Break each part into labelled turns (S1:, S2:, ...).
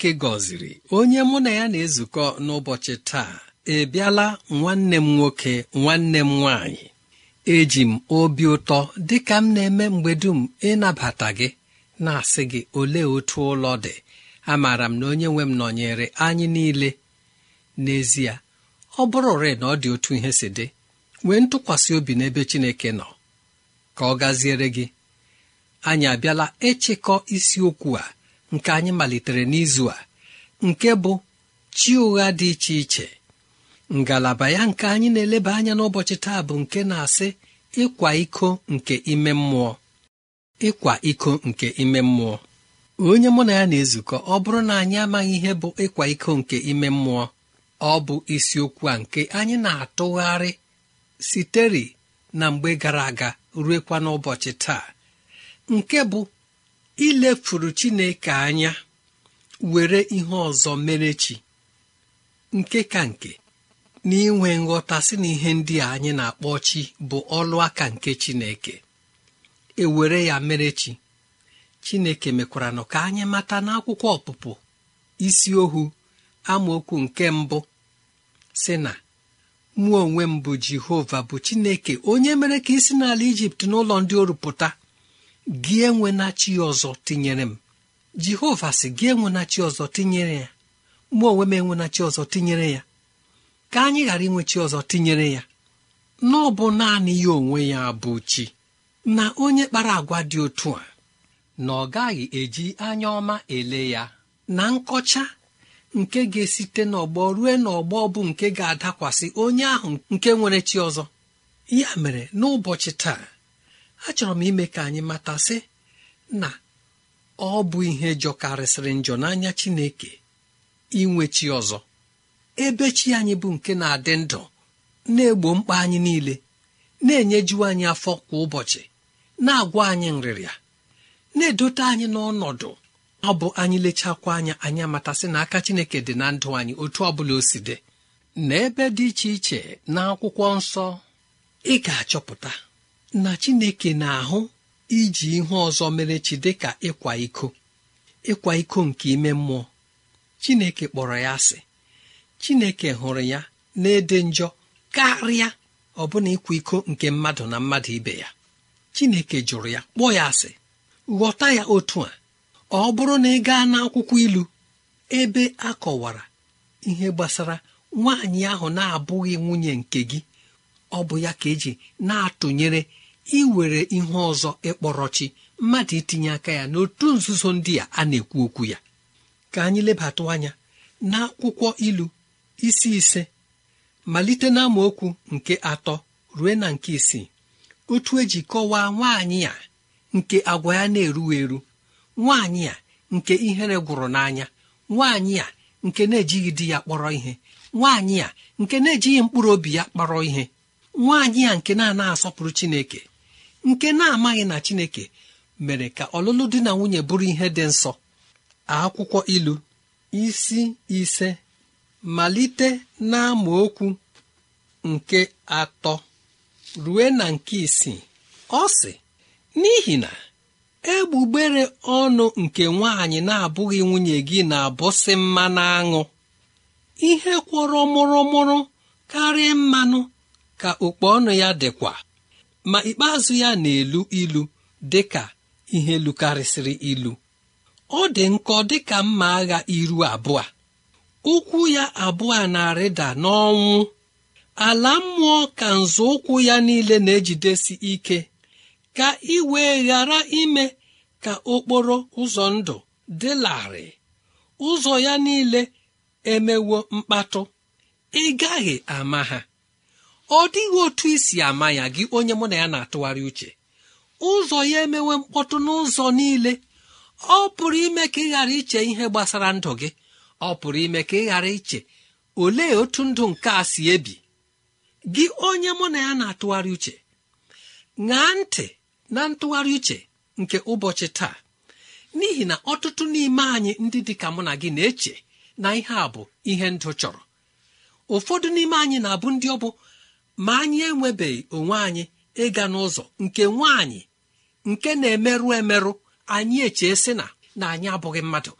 S1: chineke gọziri onye mụ na ya na-ezukọ n'ụbọchị taa ebiala nwanne m nwoke nwanne m nwaanyị eji m obi ụtọ dịka m na-eme mgbe dum ịnabata gị na-asị gị olee otu ụlọ dị amaara m na onye nwe m nọnyere anyị niile n'ezie ọ bụrụ rịị na ọ dị otu ihe si dị nwee ntụkwasị obi n'ebe Chineke nọ ka ọ gaziere gị anyị abịala ịchịkọ isiokwu a nke anyị malitere n'izu a nke bụ chi ụgha dị iche iche ngalaba ya nke anyị na-eleba anya n'ụbọchị taa bụ nke na-asị ịkwa iko nke ime mmụọ ịkwa iko nke ime mmụọ onye mụ na ya na-ezukọ ọ bụrụ na anyị amaghị ihe bụ ịkwa iko nke ime mmụọ ọ bụ isiokwu a nke anyị na-atụgharị sitere na mgbe gara aga ruekwa n'ụbọchị taa nke bụ ilefuru chineke anya were ihe ọzọ mere chi nke ka nke na inwe nghọta si na ihe ndị a anyị na-akpọ chi bụ ọlụaka nke chineke ewere ya mere chi chineke mekwara nọ ka anyị mata n'akwụkwọ ọpụpụ isi ohu amaokwu nke mbụ si na mụọ onwe m bụ jehova bụ chineke onye mere ka isi n'ala ijipt n'ụlọ ndị orupụta gị enwena chi ọzọ tinyere m jehova sị gị enwenachi chi ọzọ tinyere ya mụ onwe m enwenachi chi ọzọ tinyere ya ka anyị ghara inwe chi ọzọ tinyere ya na ọ naanị ya onwe ya bụ chi na onye kpara agwa dị otu a na ọ gaghị eji anya ọma ele ya na nkọcha nke ga-esite n'ọgbọ ruo n'ọgbọ bụ nke ga-adakwasị onye ahụ nke nwere chi ọzọ ya mere n'ụbọchị taa achọrọ m ime ka anyị matasị na ọ bụ ihe jọkarịsịrị njọ n'anya Chineke inwe chi ọzọ ebe chi anyị bụ nke na-adị ndụ na-egbo mkpa anyị niile na-enyeju anyị afọ kwa ụbọchị na-agwa anyị nrịrịa na-edote anyị n'ọnọdụ ọ bụ anyị lechakwa anya anyị amatasị na aka Chineke dị na ndụ anyị otu ọ bụla o si dị dị iche iche na akwụkwọ nsọ ị ga-achọpụta na chineke na-ahụ iji ihe ọzọ mere chi dịka ịkwa iko ịkwa iko nke ime mmụọ chineke kpọrọ ya asị chineke hụrụ ya na-ede njọ karịa ọbụna ịkwa iko nke mmadụ na mmadụ ibe ya chineke jụrụ ya kpọọ ya asị ghọta ya otu a ọ bụrụ na ị gaa n'akwụkwọ ilu ebe a ihe gbasara nwaanyị ahụ na-abụghị nwunye nke gị ọ bụ ya ka eji na-atụnyere iwere ihe ọzọ ịkpọrọ chi mmadụ itinye aka ya n'otu nzuzo ndị a a na-ekwu okwu ya ka anyị lebatụ anya n'akwụkwọ ilu isi ise malite na nke atọ rue na nke isii otu eji kọwaa nwaanyị a nke agwa ya na-eru eru nwaanyị a nke ihere gwụrụ n'anya nwaanyị a nke na-ejighị di ya kpọrọ ihe nwaanyị a nke na-ejighị mkpụrụ obi ya kpọrọ ihe nwaanyị a nke na-ana asọpụrụ chineke nke na-amaghị na chineke mere ka ọlụlụ di na nwunye bụrụ ihe dị nsọ akwụkwọ ilu isi ise malite okwu nke atọ rue na nke isii ọ sị n'ihi na egbugbere ọnụ nke nwaanyị na-abụghị nwunye gị na-abụsị mmanụ aṅụ ihe kwọrọ mụrụmụrụ karịa mmanụ ka okpu ọnụ ya dịkwa ma ikpeazụ ya na-elu ilu dị ka ihe lukarịsịrị ilu ọ dị nkọ dị ka mma agha iru abụọ ụkwụ ya abụọ na-arịda n'ọnwụ ala mmụọ ka nzọ ụkwụ ya niile na-ejidesi ike ka ị wee ghara ime ka okporo ụzọ ndụ dị larịị ụzọ ya niile emewo mkpatụ ị gaghị ama ha ọ dịghị otu isi ama ya gị onye mụ na ya na-atụgharị uche ụzọ ya emewe mkpọtụ n'ụzọ niile ọ pụrụ ime ka ị ghara iche ihe gbasara ndụ gị ọ pụrụ ime ka ị ghara iche olee otu ndụ nke a si ebi gị onye mụ na ya na-atụgharị uche ṅaa ntị na ntụgharị uche nke ụbọchị taa n'ihi na ọtụtụ n'ime anyị ndị dị ka mụ na gị na-eche na ihe a bụ ihe ndụ chọrọ ụfọdụ n'ime anyị na-abụ ndị ọ bụ ma anyị enwebeghị onwe anyị ịga n'ụzọ nke nwaanyị nke na-emerụ emerụ anyị echee sị na na anyị abụghị mmadụ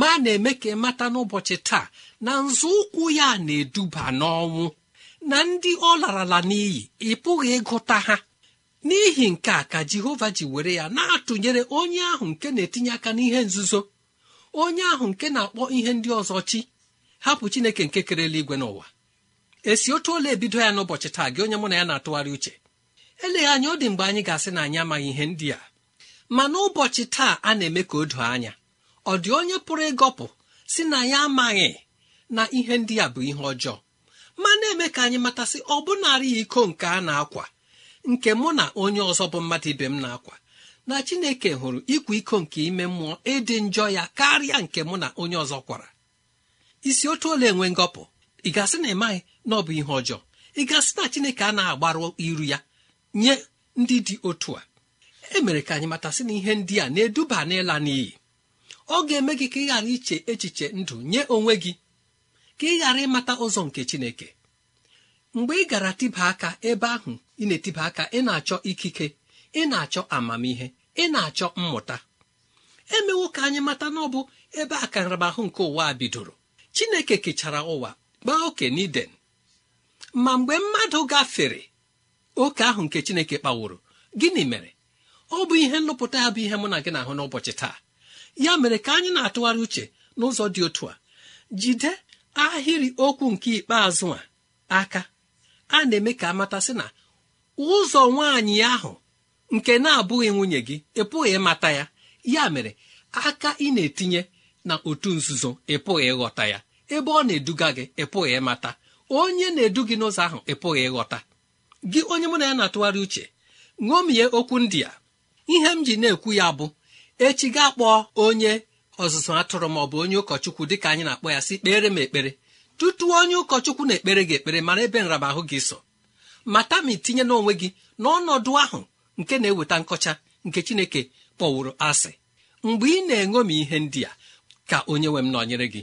S1: ma na-eme ka ịmata n'ụbọchị taa na nzọụkwụ ya na-eduba n'ọnwụ na ndị ọ larala n'iyi ị pụghị ịgụta ha n'ihi nke a ka jehova ji were ya na-atụnyere onye ahụ nke na-etinye aka n'ihe nzuzo onye ahụ nke na-akpọ ihe ndị ọzọ chi hapụ chineke nke kerela igwe n'ụwa esi otu ole ebido ya n'ụbọchị taa gị onye mụ na ya na-atụgharị uche eleghị anya ọ dị mgbe anyị ga-asị na anyị amaghị ihe ndị a ma n'ụbọchị taa a na-eme ka o doo anya ọ dị onye pụrụ ịgọpụ si na ya amaghị na ihe ndị a bụ ihe ọjọọ ma na-eme ka anyị matasị ọ bụnarị ya iko nke a na-akwa nke mụ na onye ọzọ bụ mmadụ ibe m na-akwa na chineke hụrụ ịkwa iko nke ime mmụọ ịdị njọ ya karịa nke mụ na onye ọzọ kwara isi otu ole enwe ngọpụ ị gasị na ịmaghị na ọ bụ ihe ọjọọ ị gasị na chineke a na-agbaru iru ya nye ndị dị otu a e mere ka anyị matasị na ihe ndị a na-eduba n'ịla n'iyi ọ ga-eme gị ka ị ghara iche echiche ndụ nye onwe gị ka ị ghara ịmata ụzọ nke chineke mgbe ị gara tịba aka ebe ahụ ị na-etiba aka ị na-achọ ikike ị na-achọ amamihe ị na-achọ mmụta emewo ka anyị mata na ọ bụ ebe nramahụ nke ụwa bidoro chineke kechara ụwa gbaa oke n'iden ma mgbe mmadụ gafere oke ahụ nke chineke kpaworo gịnị mere ọ bụ ihe nlụpụta ya bụ ihe mụ na gị na-ahụ n'ụbọchị taa ya mere ka anyị na-atụgharị uche n'ụzọ dị otu a jide ahịrị okwu nke ikpeazụ a aka a na-eme ka amatasị na ụzọ nwaanyị ahụ nke na-abụghị nwunye gị ịpụghị ịmata ya ya mere aka ị na-etinye na otu nzuzo ịpụghị ịghọta ya ebe ọ na-eduga gị ịpụghị ịmata onye na-edu gị n'ụzọ ahụ ị pụghị ịghọta gị onye mụ na ya na-atụgharị uche ṅomie okwu ndị a ihe m ji na-ekwu ya bụ echi gaa kpọọ onye ọzụzụ atụrụ maọ ọ bụ onye ụkọchukwu dị ka anyị na-akpọ ya si kpere m ekpere tutu onye ụkọchukwu na-ekpere gị ekpere mara ebe ahụ gị so mata ma itinye n'onwe gị n'ọnọdụ ahụ nke na-eweta nkọcha nke chineke kpọwụrụ asị mgbe ị na-eṅomi ihe ndị a ka onye nwe m nọnyere gị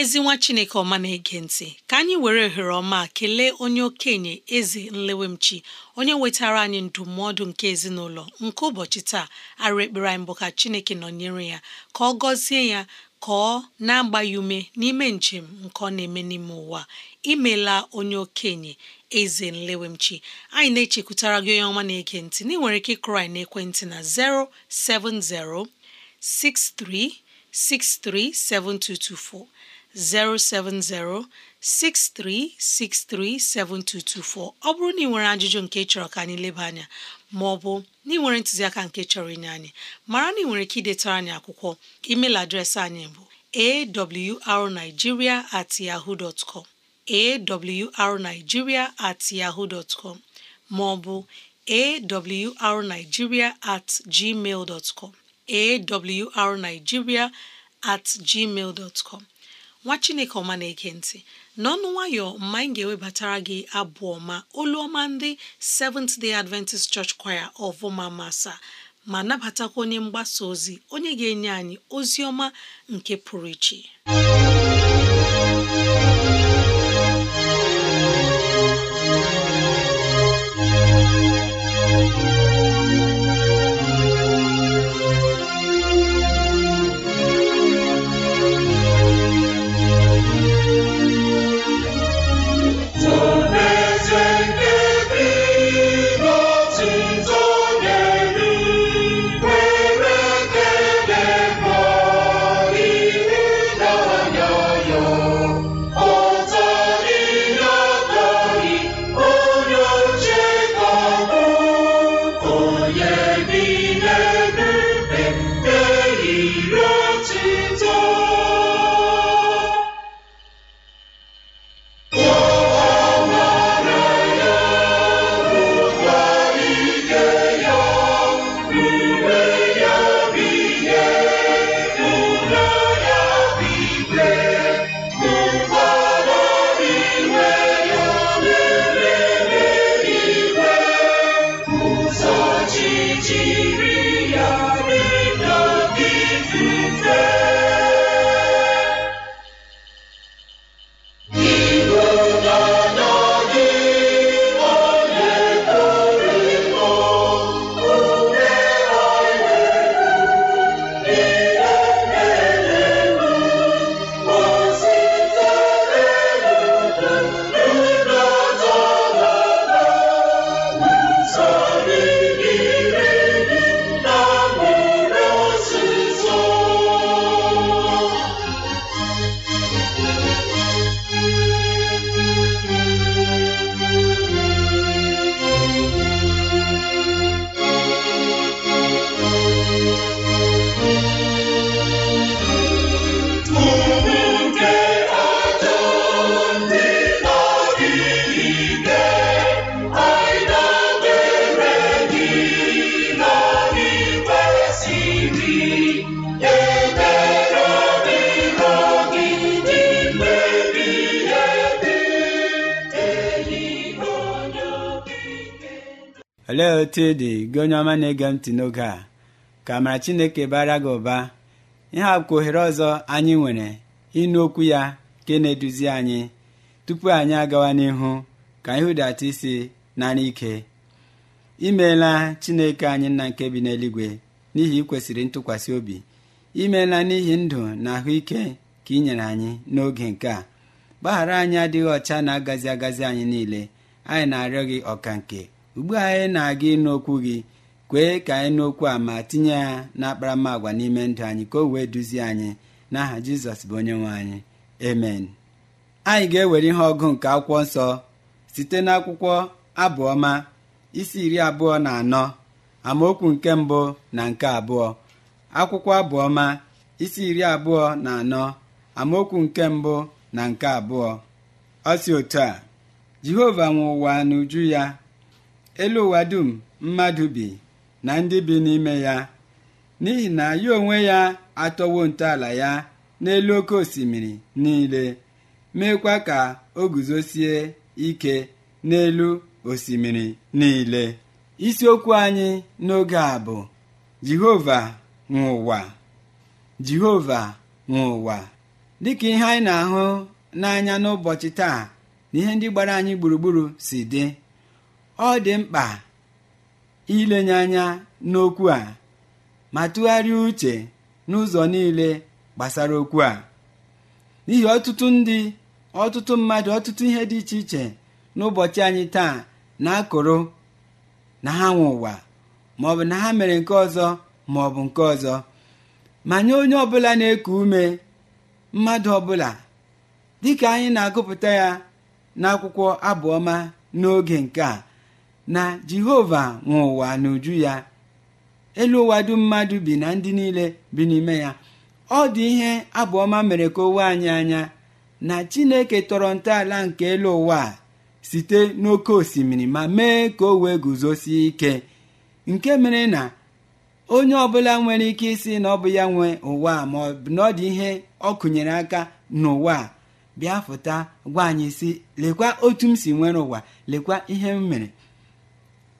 S2: ezi nwa chineke ọma na-ege ntị ka anyị were ohere ọma kelee onye okenye eze nlewemchi onye wetara anyị ndụmọdụ nke ezinụlọ nke ụbọchị taa arụ ekpere anyị bụ ka chineke nọnyere ya ka ọ gọzie ya ka ọ na-agba ume n'ime njem nke ọ na-eme n'ime ụwa imela onye okenye eze nlewemchi anyị na-echekwutara gị onye ọma na-ege ntị na ị nwere ike ịkụrụ anyị ekwentị na 07063637224 070 7224 ọ bụrụ na ị nwere ajụjụ nke chọrọ ka anyị leba anya ma ọ bụ na ị nwere ntụziaka nke chọrọ inye anyị mara na ị nwere ike idetara anyị akwụkwọ email adreesị anyị bụ arigiria at at ma at nwa chineke ọma na-ege ntị n'ọnụ nwayọ mma anyị ga-ewebatara gị abụ ọma olu ọma ndị Seventh Day Adventist Church Choir of ọvụma masa ma nabatakwa onye mgbasa ozi onye ga-enye anyị ozi ọma nke pụrụ iche
S3: etu ọ dị gị onye ọma na-ege ntị n'oge a ka amara Chineke bara gị ụba ihe akwụkwọ ohere ọzọ anyị nwere ịnụ okwu ya nke na-eduzi anyị tupu anyị agawa n'ihu ka anyị hụdata isi nara ike imeela Chineke anyị nna nke bi n'eluigwe n'ihi ikwesịrị ntụkwasị obi imeela n'ihi ndụ na ahụike ka ị nyere anyị n'oge nke a gbaghara anyị adịghị ọcha na-agazi agazi anyị niile anyị na-arịọ gị ọka nke ugbu a anyị na-aga ịnụ okwu gị kwee ka anyị n'okwu a ma tinye ya agwa n'ime ndụ anyị ka o wee duzie anyị n'aha jizọs bụ onye nwe anyị amen anyị ga-ewere ihe ọgụ nke akwụkwọ nsọ site n'akwụkwọ abụọma isi iri abụọ na anọ amaokwu nke mbụ na nke abụọ akwụkwọ abụọma isi iri abụọ na anọ amaokwu nke mbụ na nke abụọ ọ si otu a jehova nwe ụwa n'uju ya elu ụwa dum mmadụ bi na ndị bi n'ime ya n'ihi na ya onwe ya atọwo ntọala ya n'elu oke osimiri niile meekwa ka o guzosie ike n'elu osimiri niile Isi okwu anyị n'oge a bụ jehova nwụwa ụwa jehova nwụwa dịka ihe anyị na-ahụ n'anya n'ụbọchị taa na ihe ndị gbara anyị gburugburu si dị ọ dị mkpa ilenye anya n'okwu a ma tụgharịa uche n'ụzọ niile gbasara okwu a n'ihi ọtụtụ ndị ọtụtụ mmadụ ọtụtụ ihe dị iche iche n'ụbọchị anyị taa na-akụrụ na ha nwe ụwa bụ na ha mere nke ọzọ ma ọ bụ nke ọzọ ma nye onye ọbụla na-eku ume mmadụ ọbụla dịka anyị na-agụpụta ya n'akwụkwọ abụọma n'oge nke a na jehova nwe ụwa n'uju ya elu ụwa dum mmadụ bi na ndị niile bi n'ime ya ọ dị ihe abụọma mere ka owe anyị anya na chineke tọrọ ntọala nke elu ụwa site n'oke osimiri ma mee ka o wee guzosie ike nke mere na onye ọbụla nwere ike isi na ọ bụ ya nwe ụwa ma ọ bụ ọ dị ihe ọ kụnyere aka n'ụwa bịa fụta gwa anyị si lekwa otu m si nwere ụwa lekwa ihe m mere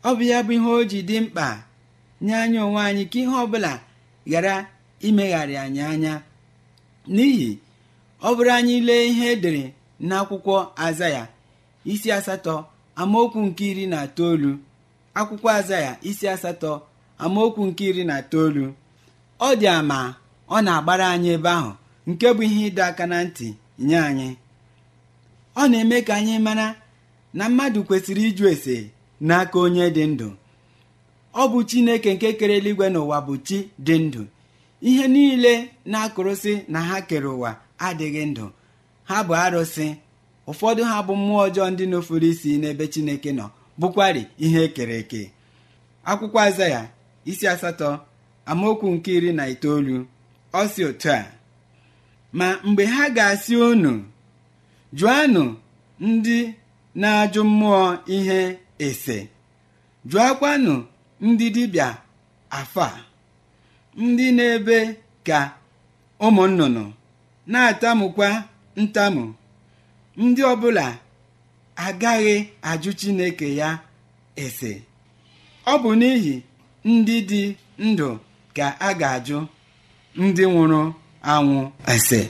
S3: ọ bụ ya bụ ihe o ji dị mkpa nye anyị onwe anyị ka ihe ọbụla ghara imegharị anyị anya n'ihi ọ bụrụ anyị lee ihe edere n'akwụkwọ azaya isi asatọ amaokwu nke iri na itoolu akwụkwọ azaya isi asatọ amaokwu nke iri na itoolu ọ dị ama ọ na-agbara anyị ebe ahụ nke bụ ihe ịdọ aka na ntị nye anyị ọ na-eme ka anyị mara na mmadụ kwesịrị ịjụ ese n'aka onye dị ndụ ọ bụ chineke nke kere eluigwe n'ụwa bụ chi dị ndụ ihe niile na-akụrụsị na ha kere ụwa adịghị ndụ ha bụ arụsị ụfọdụ ha bụ mmụọ ọjọọ ndị n'ofuru isi n'ebe chineke nọ bụkwarị ihe e kere eke akwụkwọ azaya isi asatọ amaokwu nke iri na itoolu ọ si otu a ma mgbe ha ga-asị unu jụanụ ndị na-ajụ mmụọ ihe ese jụọkwanụ ndị afọ a, ndị na-ebe ka ụmụ nnụnụ na-atamukwa ntamu ndị ọbụla agaghị ajụ Chineke ya ese ọ bụ n'ihi ndị dị ndụ ka a ga-ajụ ndị nwụrụ anwụ ese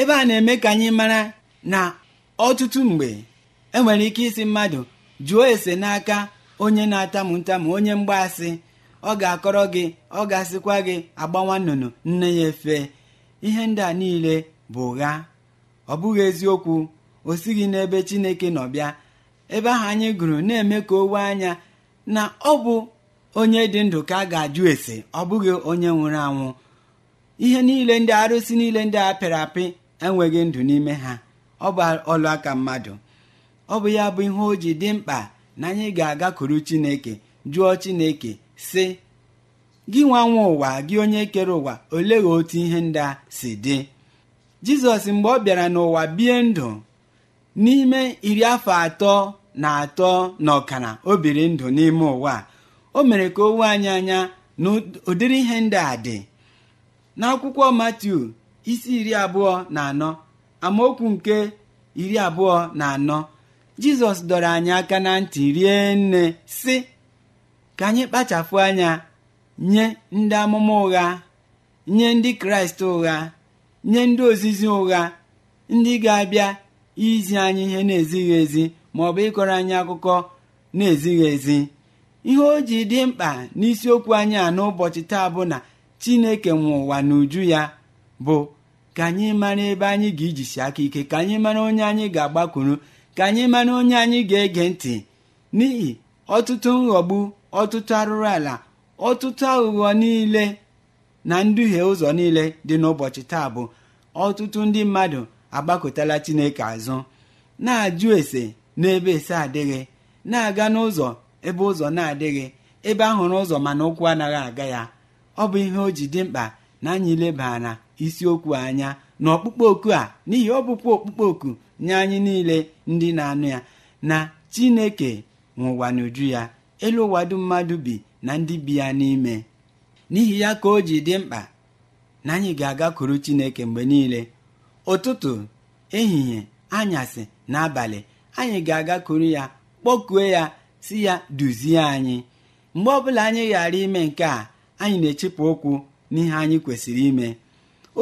S3: ebe a na-eme ka anyị mara na ọtụtụ mgbe enwere ike isi mmadụ jụọ ese n'aka onye na-atamu ntamu onye mgbaasị ọ ga-akọrọ gị ọ ga-asịkwa gị agbawa nnụnụ nne ya efe ihe ndị a niile bụ ụgha ọ bụghị eziokwu o sighị n'ebe chineke nọ bịa ebe ahụ anyị gụrụ na-eme ka owe anya na ọ bụ onye dị ndụ ka a ga-ajụ ese ọ bụghị onye nwụrụ anwụ ihe niile ndị arụsị niile ndị a pịrị apị enweghị ndụ n'ime ha ọ bụ ọlụ aka mmadụ ọ bụ ya bụ ihe o ji dị mkpa na anyị ga-agakwuru chineke jụọ chineke sị gị nwa nwa ụwa gị onye kere ụwa olegha otu ihe ndị a si dị jizọs mgbe ọ bịara n'ụwa bie ndụ n'ime iri afọ atọ na atọ na ọkara o biri ndụ n'ime ụwa o mere ka o wee anyị anya na ụdịrị ihe ndị a dị n'akwụkwọ Matiu isi iri abụọ na anọ amaokwu nke iri abụọ na anọ jizọs dọrọ anyị aka na ntị rie nne si ka anyị kpachapụ anya nye ndị amụma ụgha nye ndị kraịst ụgha nye ndị ozizi ụgha ndị ga-abịa izi anyị ihe na-ezighị ezi ma ọ bụ ịkọrọ anyị akụkọ na-ezighị ezi ihe o ji dị mkpa n'isiokwu anyị a n'ụbọchị taa bụ na chineke nwe ụwa n'uju ya bụ ka anyị mara ebe anyị ga-ejisi aka ike ka anyị mara onye anyị ga-agbakwuru ka anyị mara onye anyị ga-ege ntị n'ihi ọtụtụ nghọgbu ọtụtụ arụrụ ala ọtụtụ aghụghọ niile na nduhie ụzọ niile dị n'ụbọchị taa bụ ọtụtụ ndị mmadụ agbakọtala chineke azụ na-ajụ ese n'ebe ese adịghị na-aga n'ụzọ ebe ụzọ na-adịghị ebe ahụrụ ụzọ mana ụkwụ anaghị aga ya ọ bụ ihe o ji dị mkpa na anyị lebara isiokwu anya na ọkpụkpọ oku a n'ihi ọ bụkwa oku nye anyị niile ndị na-anụ ya na chineke nwụwa n'uju ya elu ụwa mmadụ bi na ndị bi ya n'ime n'ihi ya ka o ji dị mkpa na anyị ga-agakwuru chineke mgbe niile ụtụtụ ehihie anyasị na abalị anyị ga-agakwuru ya kpọkuo ya si ya duzie anyị mgbe ọbụla anyị ghara ime nke a anyị na-echepụ ụkwụ n'ihe anyị kwesịrị ime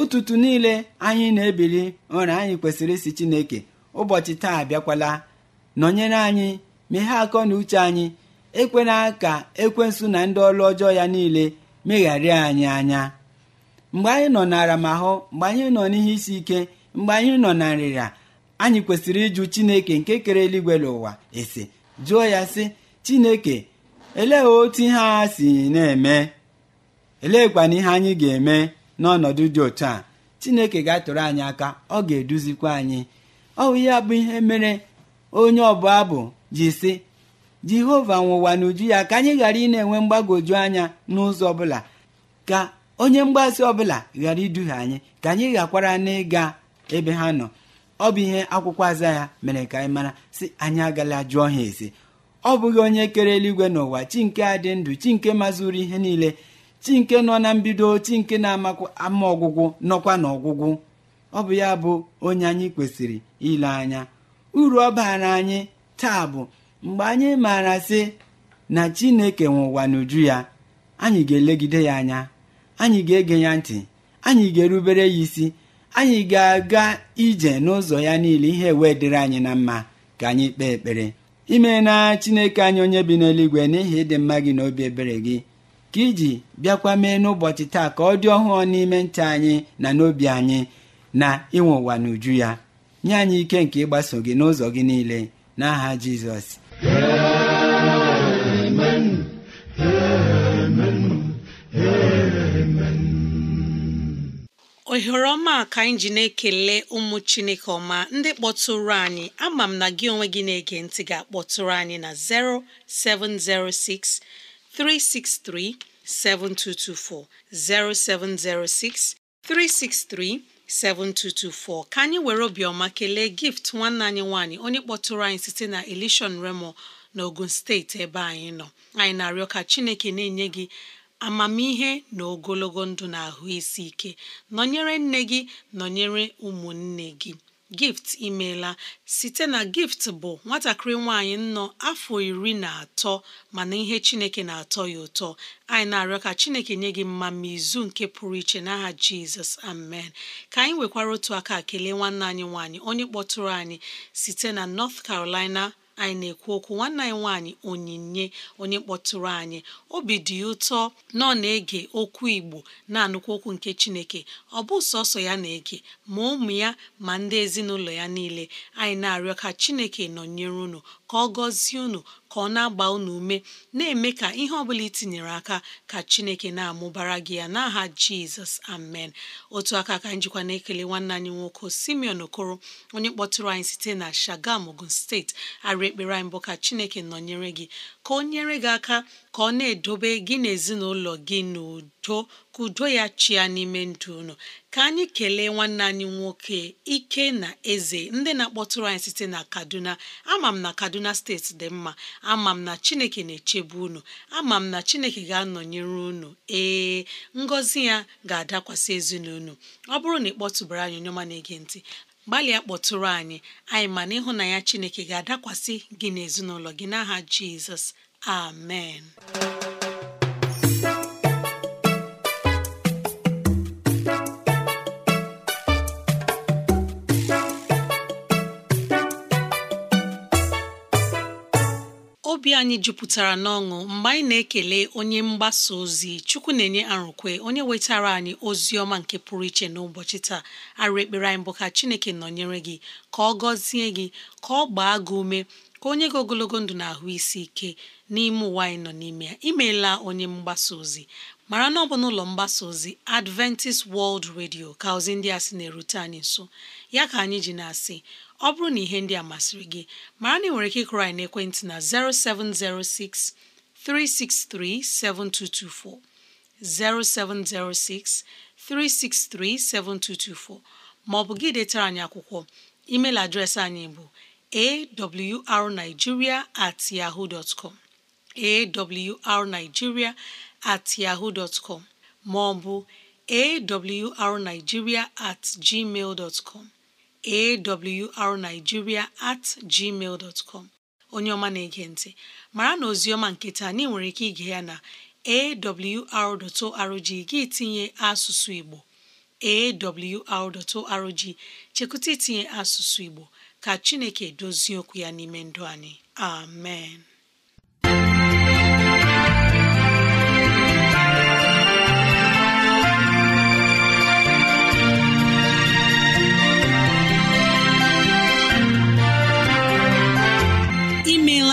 S3: ụtụtụ niile anyị na-ebili ụra anyị kwesịrị isi chineke ụbọchị taa abịakwala nọnyere anyị meghe akọ na uche anyị ekwela ka ekwensụ na ndị ọlụ ọjọọ ya niile megharịa anyị anya mgbe anyị nọ n'aramahụ, mgbe anyị nọ n'ihe isi ike mgbe anyị nọ na nrịra anyị kwesịrị ịjụ chineke nke kere eluigwe n'ụwa ese jụọ ya sị chineke elee otu ihe a si na-eme kwana ihe anyị ga-eme n'ọnọdụ dị otu a chineke ga-atụrụ anyị aka ọ ga-eduzikwa anyị ọ bụ ya bụ ihe mere onye ọbụ abụ ji sị jehova nwụwa n'uju ya ka anyị ghara ị na-enwe mgbagoju anya n'ụzọ ọbụla ka onye mgbazi ọbụla ghara iduhie anyị ka anyị ghakwara n'ịga ebe ha nọ ọ bụ ihe akwụkwọ aza ya mere ka anyị mara sị anyị agala jụọ ha ezi ọ bụghị onye kere eluigwe n'ụwa chi nke a dị ndụ chi nke mazuru ihe niile chi nke nọ na mbido chi nke na-amakwa ama ọgwụgwụ nọkwa n'ọgwụgwụ ọ bụ ya bụ onye anyị kwesịrị ile anya uru ọ baara anyị taa bụ mgbe anyị maara sị na chineke nwe ụwa n'uju ya anyị ga-elegide ya anya anyị ga-ege ya ntị anyị ga-erubere ya isi anyị ga-aga ije n'ụzọ ya niile ihe wee dịrị anyị na mma ka anyị kpee ekpere ime na chineke anyị onye bi n'eluigwe n'ihi ịdị mma gị na obi ebere gị ka iji bịakwa mee n'ụbọchị taa ka ọ dị ọhụụ n'ime ntị anyị na n'obi anyị na inwe ụwa n'uju ya nye anyị ike nke ịgbaso gị n'ụzọ gị niile n'aha jizọs
S2: ohere ọma ka anyị ji na-ekele ụmụ chineke ọma ndị kpọtụrụ anyị ama m na gị onwe gị na-ege ntị ga-akpọtụrụ anyị na 0706 363 7224 0706 363 7224 ka anyị were obiọma kelee gift nwanne anyị nwanyị onye kpọtụrụ anyị site na elishon remo na ogun steeti ebe anyị nọ anyị na-arịọ ka chineke na-enye gị amamihe na ogologo ndụ na ahụ isi ike nọnyere nne gị nọnyere ụmụnne gị gift imeela site na gift bụ nwatakịrị nwaanyị nọ afọ iri na atọ mana ihe chineke na-atọ ya ụtọ anyị na-arịọ ka chineke nye gị mma ma izu nke pụrụ iche n'aha jizọs amen ka anyị nwekwara otu aka kelee nwanne anyị nwanyị onye kpọtụrụ anyị site na north carolina anyị na-ekwu okwu nwanne anyị nwaanyị onyinye onye kpọtụrụ anyị obi dị ụtọ na ọ na-ege okwu Igbo na-anụkwu okwu nke Chineke ọ bụ sọsọ ya na-ege ma ụmụ ya ma ndị ezinụlọ ya niile anyị na-arịọ ka Chineke nọnyere unu ka ọ gọzie unu ka ọ na-agba unu ume na-eme ka ihe ọbụla itinyere aka ka Chineke na-amụbara gị ya n'aha Jizọs amen otu aka ka njikwa na-ekele nwanne anyị nwoke Simeon Okoro onye kpọtụrụ anyị site na Shagam Ogun steeti arị ekpere anyị mbụ ka Chineke nọnyere gị ka o nyere gị aka ka ọ na-edobe gị na gị n'udo too ka udo ya chịa n'ime ndụ unu ka anyị kelee nwanne anyị nwoke ike na eze ndị na-akpọtụrụ anyị site na kaduna ama m na kaduna steeti dị mma ama m na chineke na-echebe unu ama m na chineke ga-anọnyere unu ee ngọzi ya ga-adakwasị ezinụlọ ọ bụrụ na ị kpọtụbara anyị onye ọma na-ege ntị gbalịa kpọtụrụ anyị anyị ma na ịhụnanya chineke ga-adakwasị gị na gị n'aha jizọs amen obi anyị jupụtara n'ọṅụ mgbe anyị na-ekele onye mgbasa ozi chukwu na-enye arụkwe onye wetara anyị ozi ọma nke pụrụ iche n'ụbọchị taa arụ ekpere anyị bụ ka chineke nọnyere gị ka ọ gọzie gị ka ọ gbaa gị ume ka onye gị ogologo ndụ na-ahụ isi ike n'ime ụwa anyị nọ n'ime ya imeela onye mgbasa ozi mara na ọ bụ n'ụlọ mgbasa ozi Adventist World Radio ka ozi ndị a sị na-erute anyị nso ya ka anyị ji na-asị ọ bụrụ na ihe ndị a masịrị gị mara na ị nwere ike ịkụrụ anyị n'ekwentị na 0706 363 7224 0706 363 7224 ma ọ bụ gị detara anyị akwụkwọ email adreesị anyị bụ awrnigeria at yahoo dot com at yahoo dot com ma ọ awrnigeria at gmail dot com at gmail dot onye ọma na-ege ntị mara na ozi ọma nke nwere ike ige ya na arrg gị tinye asụsụ Igbo arrg chekụta itinye asụsụ Igbo ka chineke dozie okwu ya n'ime ndụ anyị amen imeela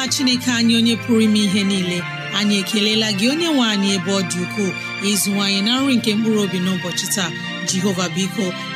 S2: chineke anyị onye pụrụ ime ihe niile anyị ekelela gị onye nwe anyị ebe ọ dị ukwuu ịzụwanyị na nri nke mkpụrụ obi n'ụbọchị taa jehova biko